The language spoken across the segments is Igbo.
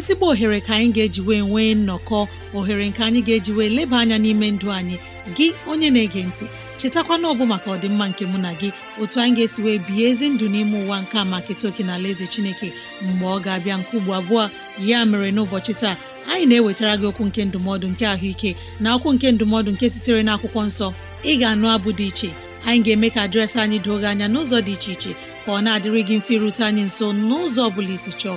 ezigbo ohere ka anyị ga-eji wee nwee nnọkọ ohere nke anyị ga-eji wee leba anya n'ime ndụ anyị gị onye na-ege ntị chetakwa ọbụ maka ọdịmma nke mụ na gị otu anyị ga-esi wee bihe ezi ndụ n'ime ụwa nke a maka etoke na ala eze chineke mgbe ọ ga-abịa nke ugbo abụọ ya mere n'ụbọchị taa anyị na-ewetara gị okwu nke ndụmọdụ nke ahụike na okwu nke ndụmọdụ nke sitere na akwụkwọ nsọ ị ga-anụ abụ dị iche anyị ga-eme ka dịrasị anyị doo gị anya n'ụzọ dị iche iche ka ọ na-adịrị mfe irute anyị nso n'ụzọ ọ bụla isi chọọ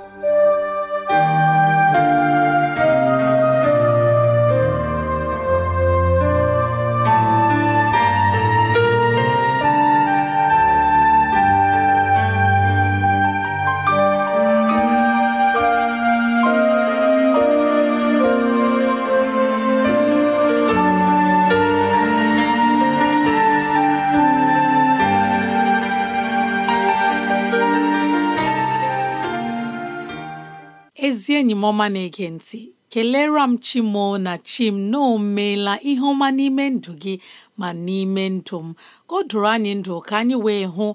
ọma na-ege ntị kelere m chimo na chim na o meela ihe ọma n'ime ndụ gị ma n'ime ndụ m ka o doro anyị ndụ ka anyị wee hụ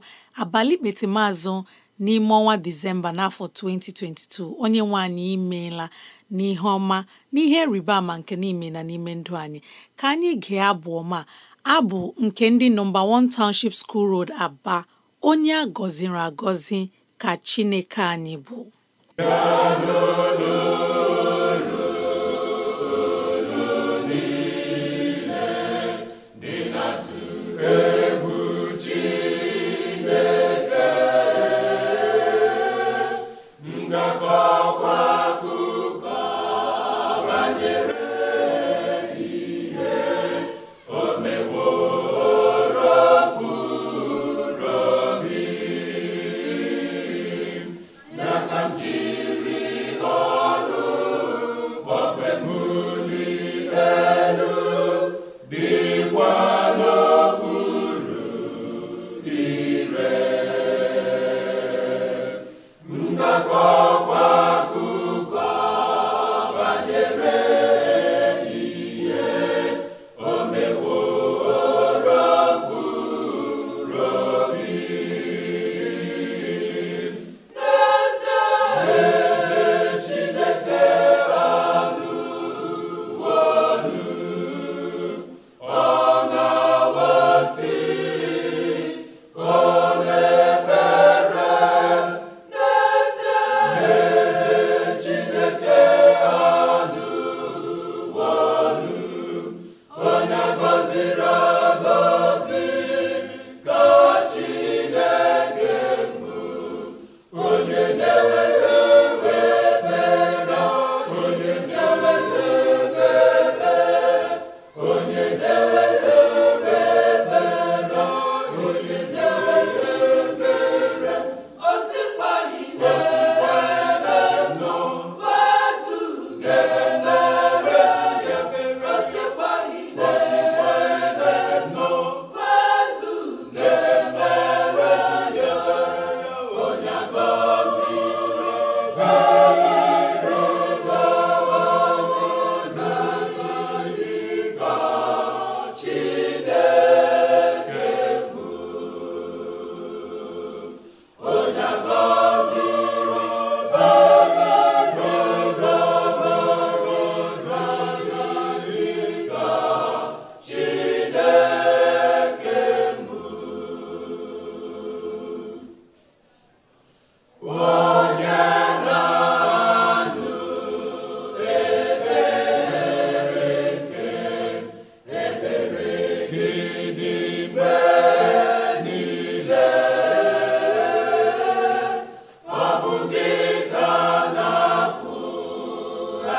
abalị kpetemazụ n'ime ọnwa disemba n'afọ 2022 onye nwe anyị imeela n'ihe ọma n'ihe rịba ama nke n'ime na n'ime ndụ anyị ka anyị gee abụ ọma abụ nke ndị nọmba 1 Township School Road Aba onye a gọziri agọzi ka Chineke anyị bụ Ka n'olu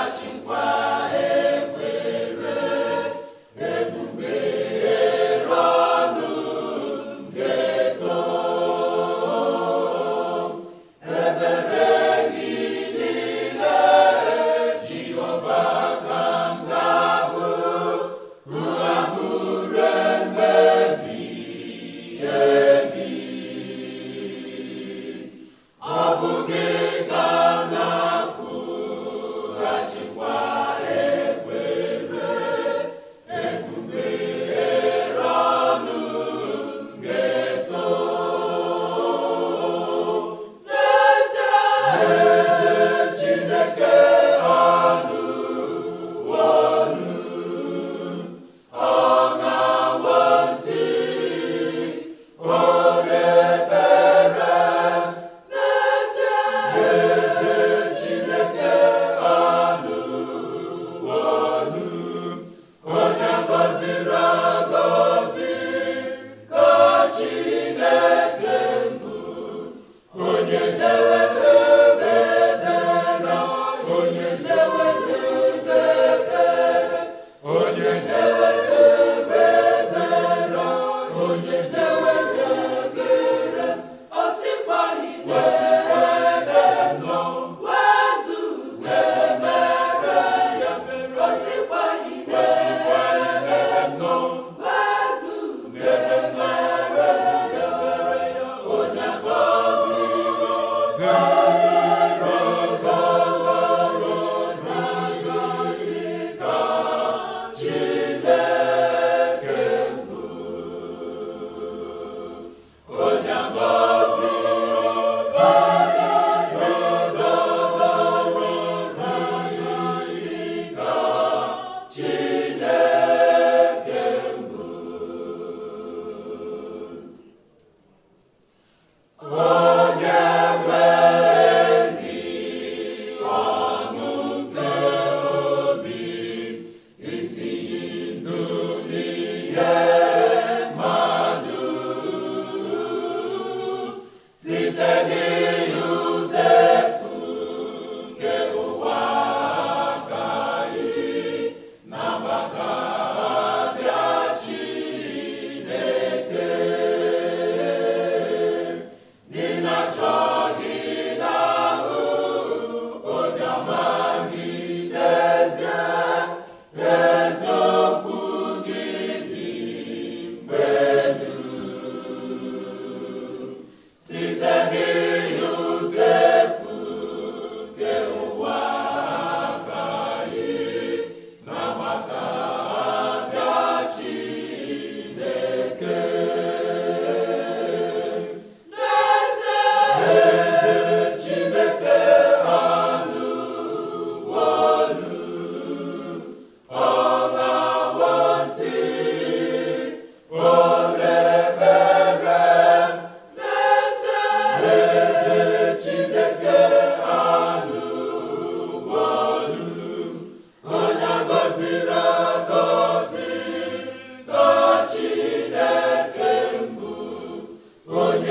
Achịkwa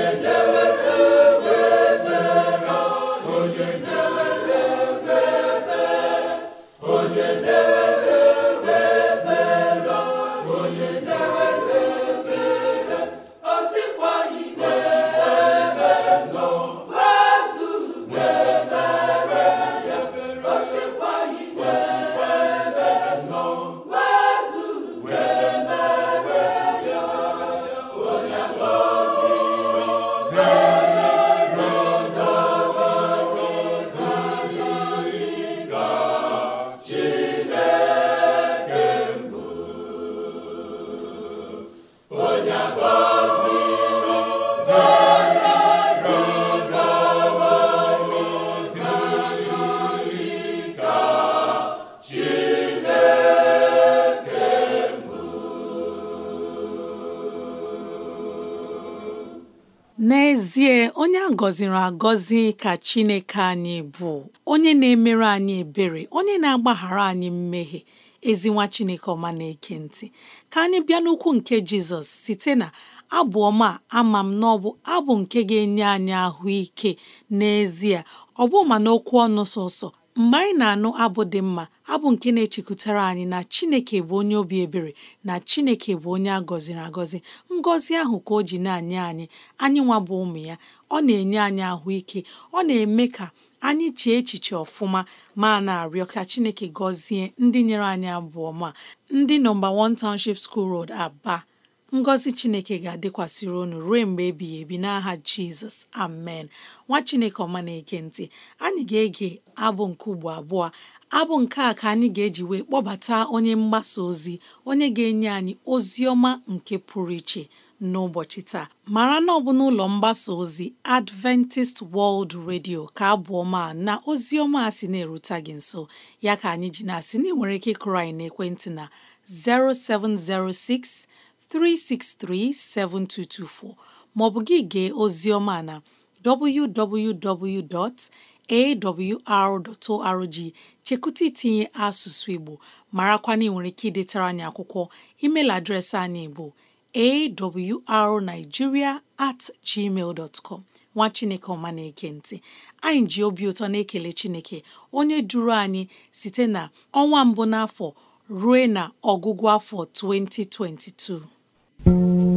window. n'ezie onye a gọziri agọzi ka Chineke anyị bụ onye na-emere anyị ebere onye na-agbaghara anyị mmehie ezinwa Chineke ọma na-eke ntị ka anyị bịa n'ukwu nke Jizọs site na abụ ọma ama m na ọbụ abụ nke ga-enye anyị ahụike n'ezie ọ bụ ma n'okwu ọnụ sọsọ mgbe anyị na-anụ abụ dị mma abụ nke na-echekwutara anyị na Chineke bụ onye obi ebere na Chineke bụ onye a gọziri agọzi ngọzi ahụ ka o ji na anye anyị anyị nwa bụ ụmụ ya ọ na-enye anyị ahụike ọ na-eme ka anyị chee echiche ọfụma ma na-arịọ ka Chineke gọzie ndị nyere anyị abụ ọma ndị nọmba 1 Township School Road Aba ngọzi chineke ga-adịkwasịrị unu ruo mgbe ebighị ebi n'aha jizọs amen nwa chineke ọma na-ege ntị anyị ga-ege abụ nke ugbo abụọ abụ nke a ka anyị ga-eji wee kpọbata onye mgbasa ozi onye ga-enye anyị ozi ọma nke pụrụ iche n'ụbọchị taa mara na ọ bụ n'ụlọ mgbasa ozi Adventist World Radio ka abụọ na ozi ọma a sị na-erute gị nso ya ka anyị ji na-asị na ị nwere ike ịkụrụ anyị n'ekwentị na 0706 3637224 maọbụ gị gee ozi ọma na www.awr.org chekụta itinye asụsụ Igbo marakwana ị nwere ike idetara anyị akwụkwọ email adreesị anyị bụ awrnigeria at gmail dot com nwa chineke ọma na-eke ntị anyị ji obi ụtọ na-ekele chineke onye duru anyị site na ọnwa mbụ n'afọ rue na ọgwụgwụ afọ 2022 Thank you.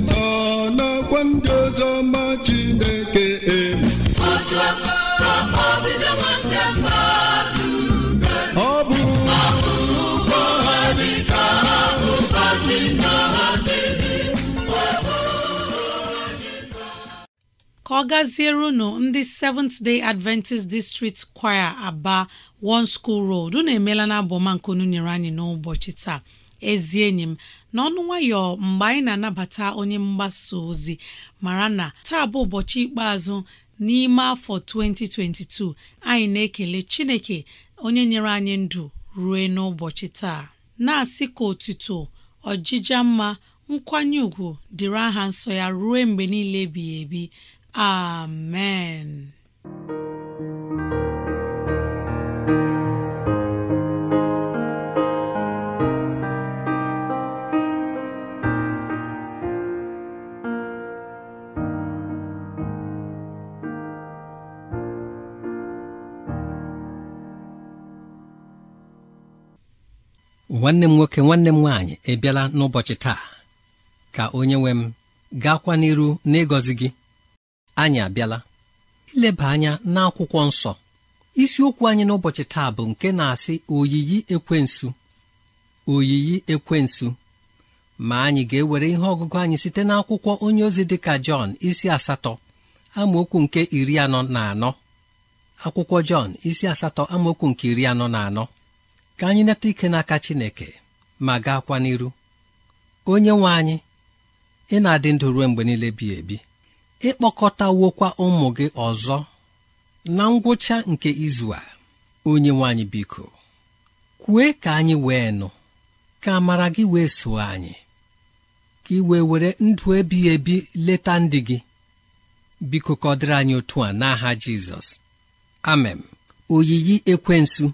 nọ ndị ọzọ ma Chineke e. ka ọ gaziere unu ndị Seventh Day Adventist District Choir Aba One School Road unu emeela na abọma nke unu nyere anyị n'ụbọchị taa ezi enyi m n'ọnụ nwayọ mgbe anyị na-anabata onye mgbasa ozi mara na taa bụ ụbọchị ikpeazụ n'ime afọ 2022 anyị na-ekele Chineke onye nyere anyị ndụ rue n'ụbọchị taa na-asị ka otuto ọjịja mma nkwanye ùgwù dịrị aha nsọ ya ruo mgbe niile ebighị ebi amen nwanne m nwoke nwanne m nwaanyị ebiala n'ụbọchị taa ka onye nwe m gaakwa n'iru n'ịgọzi gị anyị abịala ileba anya n'akwụkwọ nsọ isiokwu anyị n'ụbọchị taa bụ nke na-asị oyiyi ekwensu oyiyi ekwensu ma anyị ga-ewere ihe ọgụgụ anyị site n'akwụkwọ onye ozi dị ka Jọn isi asatọ amaokwu nke iri anọ na anọ akwụkwọ Jọn isi asatọ amaokwu nke iri anọ na anọ ka anyị neta ike n'aka Chineke ma gaakwa n'iru onye nwe anyị ị na-adị ndụ ruo mgbe niile bi ebi ịkpọkọtawokwa ụmụ gị ọzọ na ngwụcha nke izu a onye nwe anyị biko kwue ka anyị wee nụ ka amara gị wee soo anyị ka ị were ndụ ebighị ebi leta ndị gị biko ka anyị otu a n'aha Jizọs amen oyiyi ekwensu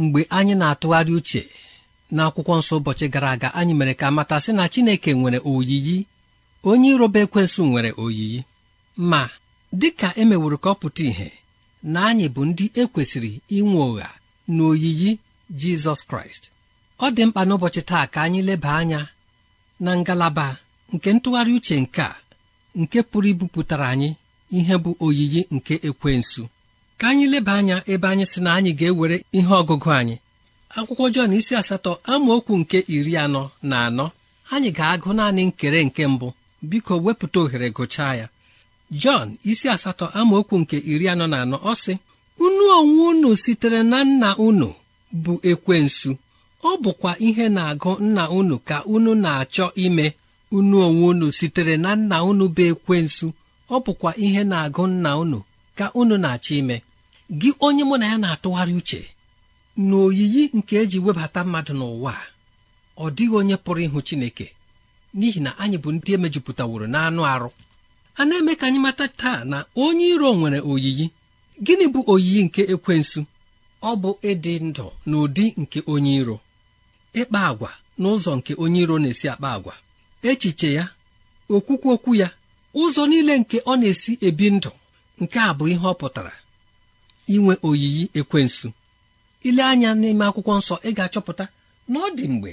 mgbe anyị na-atụgharị uche n'akwụkwọ nsọ ụbọchị gara aga anyị mere ka mata sị na Chineke nwere oyiyi onye iroba ekwensu nwere oyiyi ma dị dịka emeworo ka ọ pụta ìhè na anyị bụ ndị ekwesịrị inwe ụgha na oyiyi Jizọs Kraịst ọ dị mkpa n'ụbọchị taa ka anyị leba anya na ngalaba nke ntụgharị uche nke a nke pụrụ ibupụtara anyị ihe bụ oyiyi nke ekwensu ka anyị leba anya ebe anyị sị na anyị ga-ewere ihe ọgụgụ anyị akwụkwọ Jọn isi asatọ amaokwu nke iri anọ na anọ anyị ga-agụ naanị nkere nke mbụ biko wepụta ohere gụchaa ya Jọn isi asatọ amaokwu nke iri anọ na anọ ọ sị unu onwe unu sitere na nna unu bụ ekwensu ọ bụkwa ihe na-agụ nna unu ka unu na-achọ ime unu onwe unu sitere na nna unu bụ ekwensu ọ bụkwa ihe na-agụ nna unu ka unu na-achọ ime gị onye mụ na ya na-atụgharị uche na oyiyi nke eji webata mmadụ n'ụwa ọ dịghị onye pụrụ ịhụ Chineke n'ihi na anyị bụ ndị emejupụtaworo n'anụ arụ a na-eme ka anyị mata taa na onye iro nwere oyiyi gịnị bụ oyiyi nke ekwensu ọ bụ ịdị ndụ n'ụdị nke onye iro ịkpa agwa n'ụzọ nke onye iro na-esi akpa agwa echiche ya okwukwu okwu ya ụzọ niile nke ọ na-esi ebi ndụ nke a bụ ihe ọ pụtara inwe oyiyi ekwensu ile anya n'ime akwụkwọ nsọ ị ga-achọpụta na ọ dị mgbe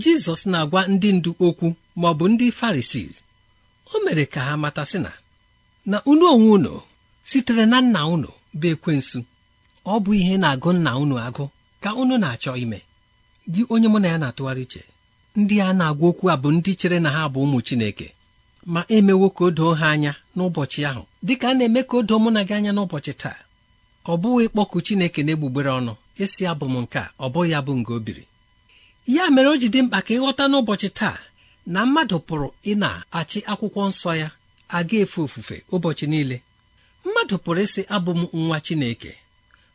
jizọs na-agwa ndị ndu okwu ma ọ bụ ndị farisii o mere ka ha mata sị na na unu onwe unu sitere na nna unu bụ ekwensu ọ bụ ihe na-agụ nna unu agụ ka unu na-achọ ime gị onye mụ na ya na-atụgharị uche ndị a na-agwa okwu a bụ ndị chere na ha bụ ụmụ Chineke ma emewo ka o doo ha anya n'ụbọchị ahụ dịka a na-eme ka o doo mụ na gị anya n'ụbọchị taa ọ bụghị ịkpọku Chineke na-egbugbere ọnụ esi abụ m nke a ọ bụghị abụ nke obiri. ya mere o ji dị mkpa ka ịghọta n'ụbọchị taa na mmadụ pụrụ ị na-achị akwụkwọ nsọ ya aga efe ofufe ụbọchị niile mmadụ pụrụ ịsị abụ m nwa Chineke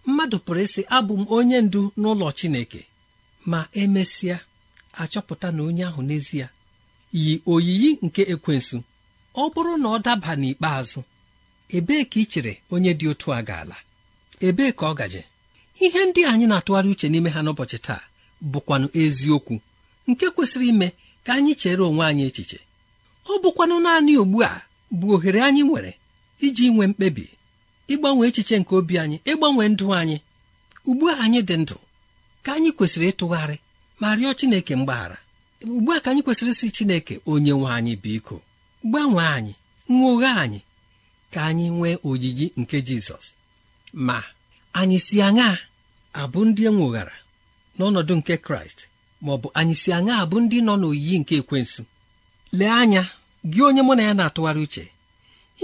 mmadụ pụrụ ịsị abụ m onye ndu n'ụlọ Chineke ma emesịa achọpụta na onye ahụ n'ezie yi oyiyi nke ekwensu ọ bụrụ na ọ daba n'ikpeazụ ebee ka ị chere onye dị otu a ga-ala ebee ka ọ gaje ihe ndị anyị na-atụgharị uche n'ime ha n'ụbọchị taa bụkwanụ eziokwu nke kwesịrị ime ka anyị chere onwe anyị echiche ọ bụkwanụ naanị ugbu a bụ ohere anyị nwere iji nwee mkpebi ịgbanwe echiche nke obi anyị ịgbanwe ndụ anyị ugbu a anyị dị ndụ ka anyị kwesịrị ịtụgharị ma rịọ Chineke mgbaghara ugbu a ka anyị kwesịrị isi Chineke onye nwe anyị biko gbanwee anyị nwoghe anyị ka anyị nwee oyiyi nke jizọs ma anyị si aṅa abụ ndị enwoghara n'ọnọdụ nke kraịst ma ọ bụ anyị si aṅa abụ ndị nọ n'oyiyi nke ekwensu lee anya gị onye mụ na ya na-atụgharị uche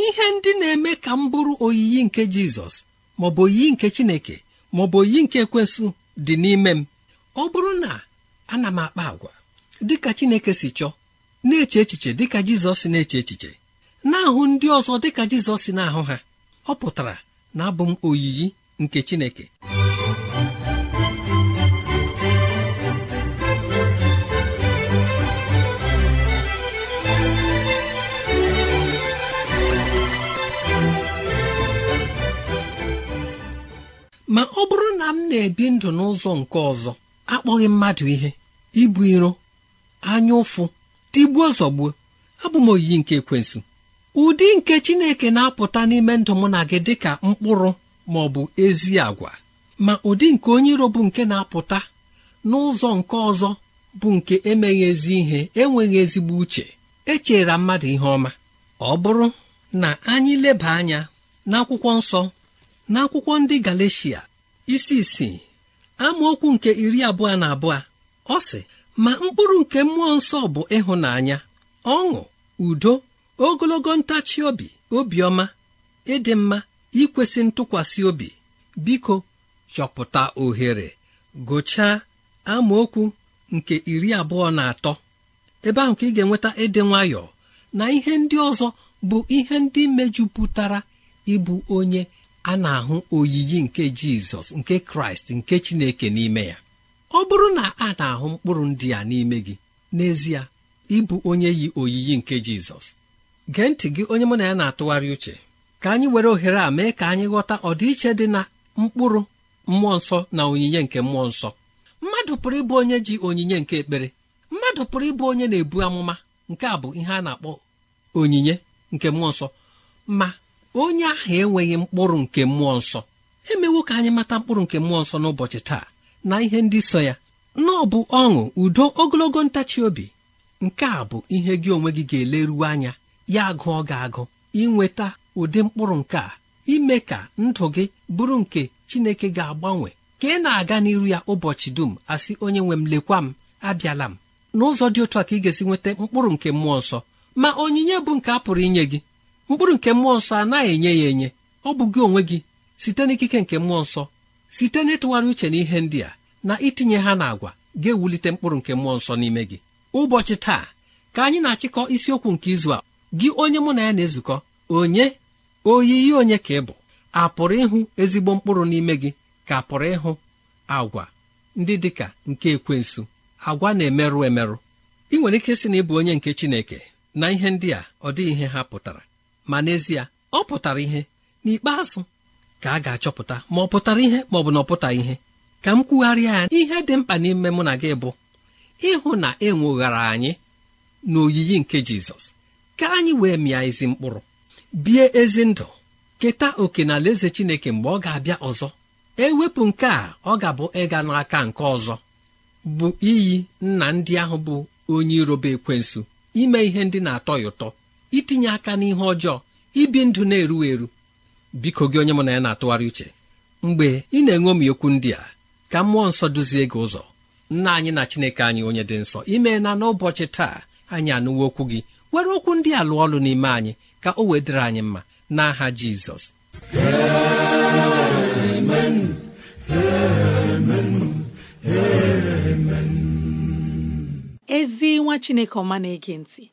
ihe ndị na-eme ka m bụrụ oyiyi nke jizọs maọbụ oyiyi nke chineke maọbụ oyiyi nke ekwensu dị n'ime m ọ bụrụ na ana m akpa agwa dịka chineke si chọọ na-eche echiche dịka jizọs na-eche echiche na-ahụ ndị ọzọ dịka jizọs na-ahụ ha ọ pụtara na abụ m oyiyi nke chineke ma ọ bụrụ na m na-ebi ndụ n'ụzọ nke ọzọ akpọghị mmadụ ihe ibu iro anya ụfụ tigbuo zọgbuo abụ m oyiyi nke ekwensụ ụdị nke chineke na-apụta n'ime ndụ mụ na gị dịka mkpụrụ ma ọ bụ ezi àgwà, ma ụdị nke onye iro bụ nke na-apụta n'ụzọ nke ọzọ bụ nke emeghị ezi ihe enweghị ezigbo uche echera mmadụ ihe ọma ọ bụrụ na anyị leba anya n'akwụkwọ nsọ n'akwụkwọ ndị Galeshia isi isii amaokwu nke iri abụọ na abụọ ọ sị ma mkpụrụ nke mmụọ nsọ bụ ịhụnanya ọṅụ udo ogologo ntachi obi obiọma ịdị mma ikwesị ntụkwasị obi biko chọpụta ohere gụchaa amaokwu nke iri abụọ na atọ ebe ahụ ka ị ga-enweta ịdị nwayọọ na ihe ndị ọzọ bụ ihe ndị mejupụtara ịbụ onye a na-ahụ oyiyi nke jizọs nke kraịst nke chineke n'ime ya ọ bụrụ na a na-ahụ mkpụrụ ndị a n'ime gị n'ezie ịbụ onye yi oyiyi nke Jizọs gee ntị gị onye mụ na ya na-atụgharị uche ka anyị were ohere a mee ka anyị ghọta ọdịiche dị na mkpụrụ mmụọ nsọ na onyinye nke mmụọ nsọ mmadụ pụrụ ịbụ onye ji onyinye nke ekpere mmadụ pụrụ ịbụ onye na-ebu amụma nke a bụ ihe a na-akpọ onyinye nke mmụọ nsọ ma onye ahụ enweghị mkpụrụ nke mmụọ nsọ emewo ka anyị mata mkpụrụ nke mmụọ nsọ n'ụbọchị taa na ihe ndị so ya na ọ bụ ọṅụ udo ogologo ntachi obi nke a bụ ihe gị onwe gị ga-eleruwe anya ya gụọ gị agụ inweta ụdị mkpụrụ nke a ime ka ndụ gị bụrụ nke Chineke ga-agbanwe ka ị na-aga n'iru ya ụbọchị dum asị onye nwe m lekwa m abịala m n'ụzọ dị otu a ka ị ga-esi nweta mkpụrụ nke mmụọ nsọ ma onyinye bụ nke a pụrụ inye gị mkpụrụ nke mmụọ nsọ anaghị enye ya enye ọ bụ gị onwe gị site n'ikike nke mmụọ nsọ site n'ịtụgharị uche n'ihe ndị a na itinye ha n'agwa ga-ewulite mkpụrụ nke mmụọ nsọ n'ime gị ụbọchị taa ka anyị na-achịkọ isiokwu nke izu a gị onye mụ na ya na-ezukọ onye oyiyi onye ka ị bụ a pụrụ ịhụ ezigbo mkpụrụ n'ime gị ka pụrụ ịhụ agwa ndị dị ka nke ekwensu agwa na-emerụ emerụ ị nwere ike sị na ịbụ onye nke Chineke na ihe ndị a ọ dịghị ihe ha pụtara ma n'ezie ọ pụtara ihe n'ikpeazụ ka a ga-achọpụta ma ọ pụtara ihe ma ọ bụ na ọ pụtaghị ihe ka m kwugharịa ya ihe dị mkpa n'ime mụ na gị bụ ịhụ na enweghara anyị n'oyiyi nke jizọs ka anyị wee mịa ezi mkpụrụ bie ezi ndụ keta oke na eze chineke mgbe ọ ga-abịa ọzọ ewepụ nke a ọ ga-abụ ịga n'aka nke ọzọ bụ iyi nna ndị ahụ bụ onye iroba ekwensu ime ihe ndị na-atọ ya ụtọ itinye aka n'ihe ọjọọ ibi ndụ na-eru eru biko gị onye mụ na ya na-atụgharị uche mgbe ị na m okwu ndị a ka mmụọ nsọ duzie gị ụzọ nna anyị na chineke anyị onye dị nsọ na n'ụbọchị taa anyị anụwo okwu gị were okwu ndị a lụọ ọlụ n'ime anyị ka o wedịrị anyị mma n'aha jizọs ezi nwa chineke ọma na-ege ntị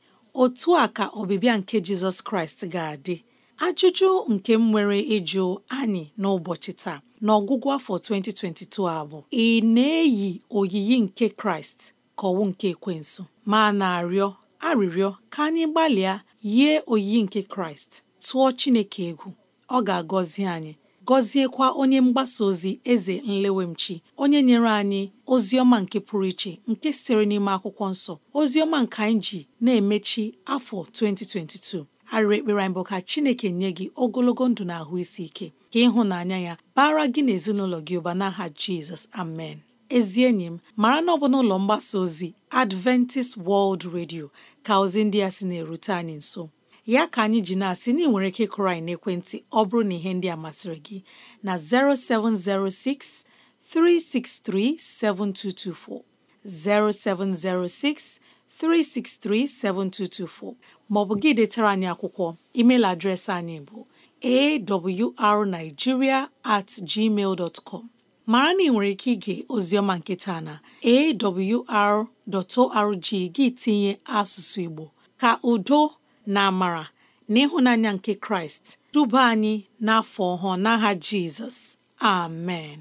otu a ka ọbịbịa nke jizọs kraịst ga-adị ajụjụ nke m nwere ịjụ anyị n'ụbọchị taa n'ọgwụgwụ afọ 2022 a bụ ị na-eyi oyiyi nke Kraịst ka ọwụ nke ekwensu ma na-arịọ arịrịọ ka anyị gbalịa yie oyiyi nke Kraịst tụọ Chineke egwu ọ ga-agọzi anyị gọziekwa onye mgbasa ozi eze nlewemchi onye nyere anyị ozi ọma nke pụrụ iche nke siri n'ime akwụkwọ nsọ ozi ọma nke anyị ji na-emechi afọ 2022 arịrị ekpere anyị bụ ka chineke nye gị ogologo ndụ na ahụ isi ike ka ịhụnanya ya bara gị na ezinụlọ gị ụba n'aha jizọs amen ezi enyi m mara na ọ bụ n'ụlọ mgbasa ozi adventist world radio ka ozi ndị a sị na-erute anyị nso ya ka anyị ji na-asị na ị nwere ike ịkụrụ anyị n'ekwentị ọ bụrụ na ihe ndị a masịrị gị na 0706 363 7224 0706 363 7224 maọbụ gị detara anyị akwụkwọ email adreesị anyị bụ awrnigeria at gmail dot com mara na ị nwere ike ige oziọma nke taa na awr.org gị tinye asụsụ Igbo ka udo na amara na ịhụnanya nke Kraịst duba anyị n'afọ ọhụụ n'agha Jizọs amen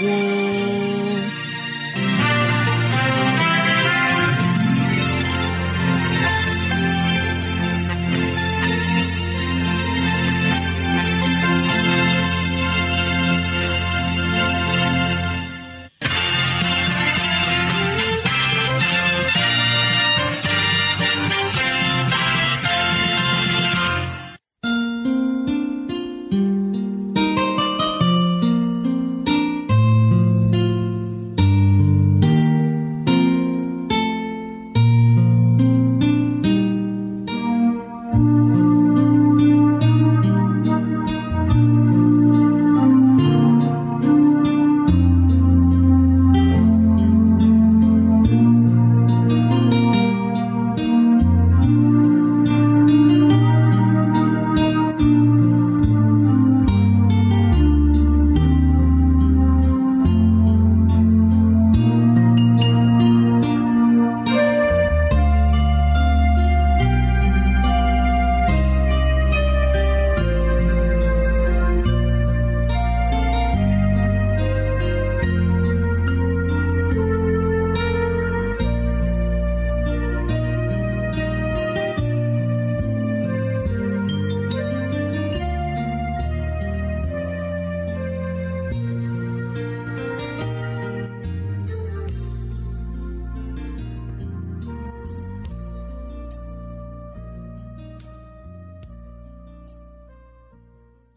wọ